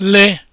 le